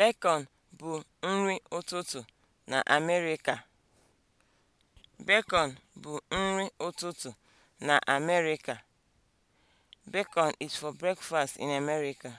Bacon bụ nri ụtụtụ na Amerịka. Bacon is for breakfast in America.